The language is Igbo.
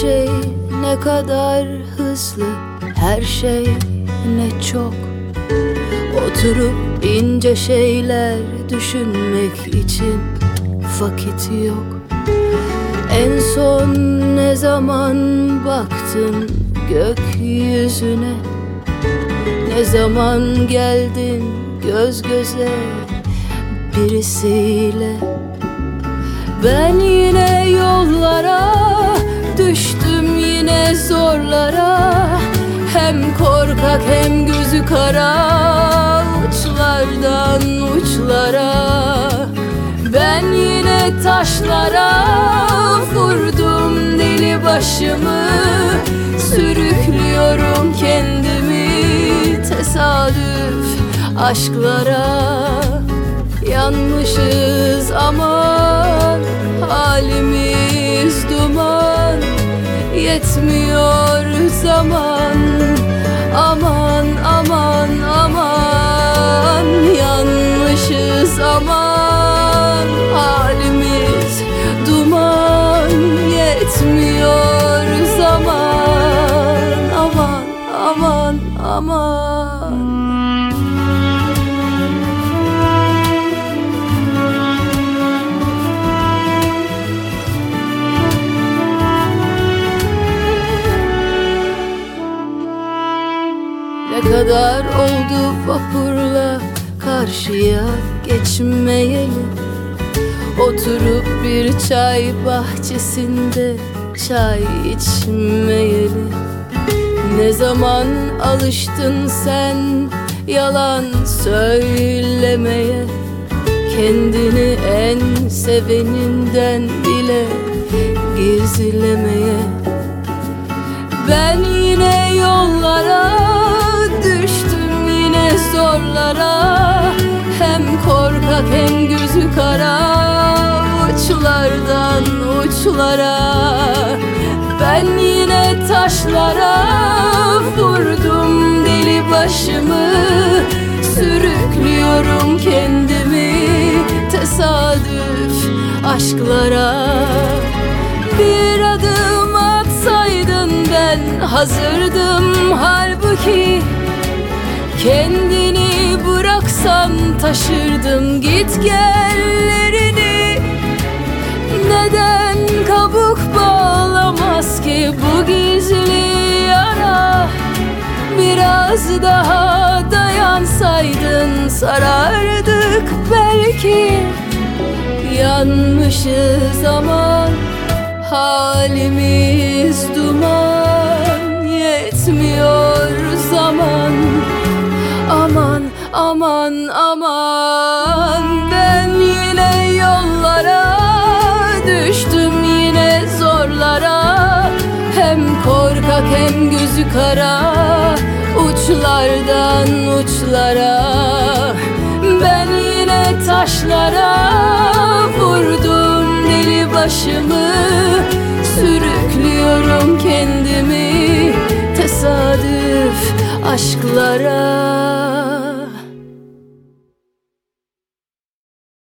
şey ne kadar hızlı Her şey ne çok Oturup ince şeyler düşünmek için vakit yok En son ne zaman baktın gökyüzüne Ne zaman geldin göz göze birisiyle Ben yine yollara taşlara vurdum deli başımı Sürüklüyorum kendimi tesadüf aşklara Yanmışız aman halimiz duman Yetmiyor zaman aman aman aman kadar oldu vapurla karşıya geçmeyeli Oturup bir çay bahçesinde çay içmeyeli Ne zaman alıştın sen yalan söylemeye Kendini en seveninden bile gizlemeye Ben yine yollara uçlardan uçlara Ben yine taşlara vurdum deli başımı Sürüklüyorum kendimi tesadüf aşklara Bir adım atsaydın ben hazırdım halbuki Kendini bıraksan taşırdım git gelleri Bitmez ki bu gizli yara Biraz daha dayansaydın sarardık belki Yanmışız ama halimiz duman Yetmiyor zaman Aman aman aman gözü kara Uçlardan uçlara Ben yine taşlara Vurdum deli başımı Sürüklüyorum kendimi Tesadüf aşklara